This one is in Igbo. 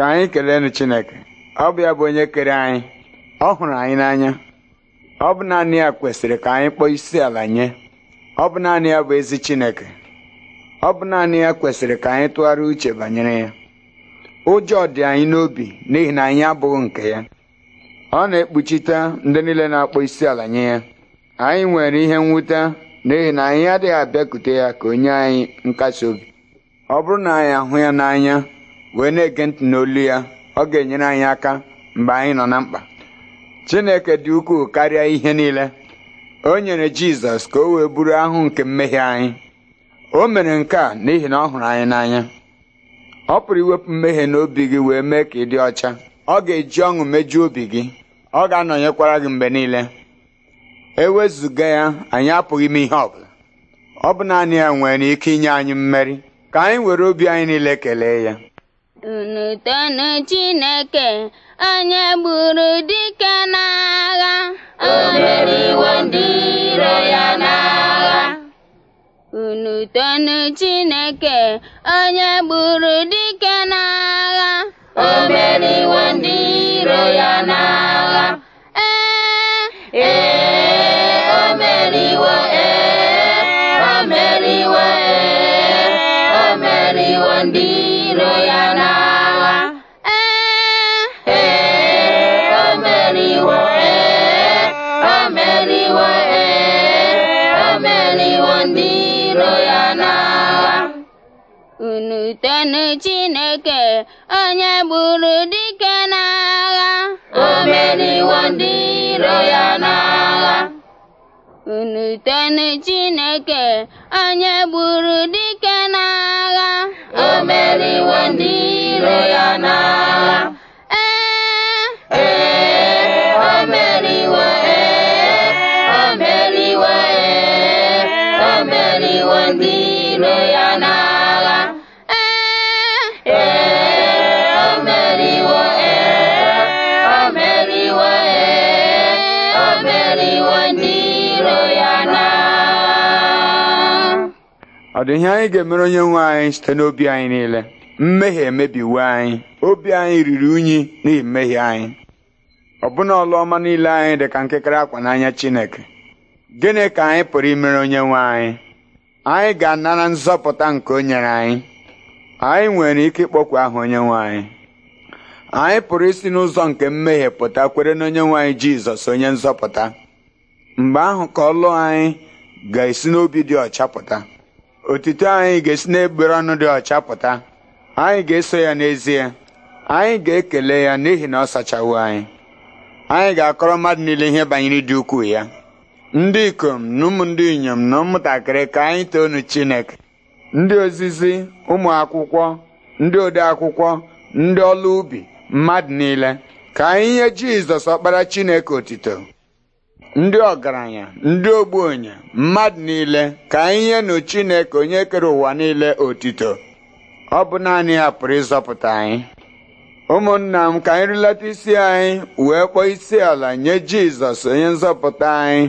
ka anyị keleenụ Chineke ọ bụ ya bụ onye kere anyị ọ hụrụ anyị n'anya ọ bụ naanị ya kwesịrị ka anyị kpọọ isi ala nye ọ bụ naanị ya bụ ezi Chineke ọ bụ naanị ya kwesịrị ka anyị tụgharị uche banyere ya ụjọ dị anyị n'obi n'ihi na anyị abụghị nke ya ọ na-ekpuchite ndị niile na-akpọ isi ala nye ya anyị nwere ihe nwute n'ihi na anyị adịghị abịakute ya ka onye anyị nkasi obi ọ bụrụ na anyị ahụ ya n'anya wee na-ege ntị n'olu ya ọ ga-enyere anyị aka mgbe anyị nọ na mkpa Chineke dị ukwuu karịa ihe niile o nyere Jizọs ka o wee buru ahụ nke mmehie anyị o mere nke a n'ihi na ọ hụrụ anyị n'anya ọ pụrụ iwepụ mmehie n'obi gị wee mee ka ị dị ọcha ọ ga-eji ọṅụ mejuo obi gị ọ ga-anọnyekwara gị mgbe niile E wezụga ya anyị apụghị ime ihe ọbụla ọ bụ naanị ya nwere ike inye anyị mmeri ka anyị were obi anyị niile kelee ya unu tonu chineke onye gburu dike n'agha o meriwo ndị iro ya n'agha unu tonu chineke onye gburu dike n'agha o meriwo ndị iro ya n'agha ee ee o meriwo ee o meriwo ee o meriwo ndị unu Chineke onye gburu dike n'agha o meriwo ndị iro ya n'agha unu Chineke onye gburu dike n'agha o meriwo ndị iro ya n'agha ee ee o ee o meriwo ee o meriwo ndị iro ya n'agha ọ dị ihe anyị ga-emere onye nwe anyị site n'obi anyị niile mmehie emebiwe anyị obi anyị riri unyi n'ihi mmehie anyị ọbụna ọlụ niile anyị dị ka nkekere akwa n'anya Chineke gịnị ka anyị pụrụ imere onye nwe anyị anyị ga-anara nzọpụta nke o nyere anyị anyị nwere ike ịkpọkwu aha onye nwe anyị anyị pụrụ isi n'ụzọ nke mmehie pụta kwere na onye nwe anyị Jizọs onye nzọpụta mgbe ahụ ka ọlụ anyị ga-esi n'obi dị ọcha pụta Otuto anyị ga-esi n'egbere ọnụ dị ọcha pụta anyị ga-eso ya n'ezie anyị ga-ekele ya n'ihi na ọ sachawo anyị anyị ga-akọrọ mmadụ niile ihe banyere ịdị ukwuu ya ndị ikom na ụmụ ndị inyom na ụmụntakịrị ka anyị nu Chineke ndị ozizi ụmụ akwụkwọ ndị ode akwụkwọ ndị ọlụ ubi mmadụ niile ka anyị nye Jizọs ọkpara Chineke otito ndị ọgaranya ndị ogbenye mmadụ niile ka ihe nụ Chineke onye kere ụwa niile otito ọ bụ naanị ya pụrụ ịzọpụta anyị ụmụnna m ka anyị rilata isi anyị wee kpọọ isi ala nye Jizọs onye nzọpụta anyị